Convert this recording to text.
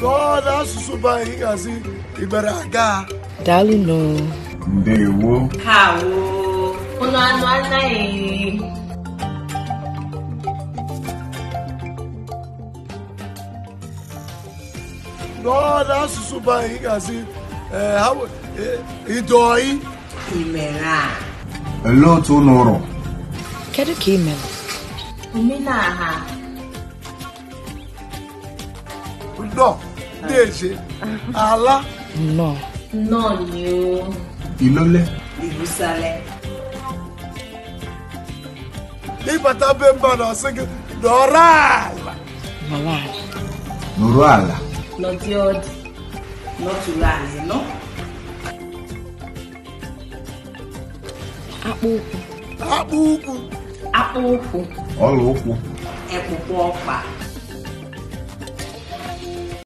n'ọdụ asụsụ bụ anyị gazi ibere aga daalụnụ ndewo kawo ụlọ anụ anaghị n'ọdụ asụsụ bụ anyị gazi idoi Imera. a olee otu ụlọ ụrọ kedu ka ị mere omenaha dèjé alá. nọ. nọ ni o. ìlọlẹ. ìbùsàlẹ. ìbàtà bẹ́ẹ̀ bá lọ sí kí nọ̀rọ̀ àlà. nọ̀rọ̀ àlà. nọ̀rọ̀ àlà. lọ́tí ọ̀dì lọ́tùlá àlẹ́ náà. akpụ ụkwụ akpụ ụkwụ akpụ ụkwụ ọla ụkwụ ekpụkpọ ọkpa